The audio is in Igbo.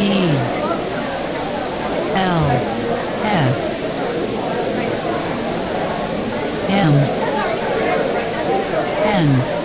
E L F M N